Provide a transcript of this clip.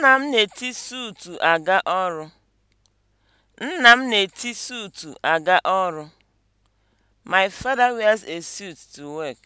Nna m na-eti suutu aga ọrụ. Nna m na-eti suutu aga ọrụ. My father wears a suit to work.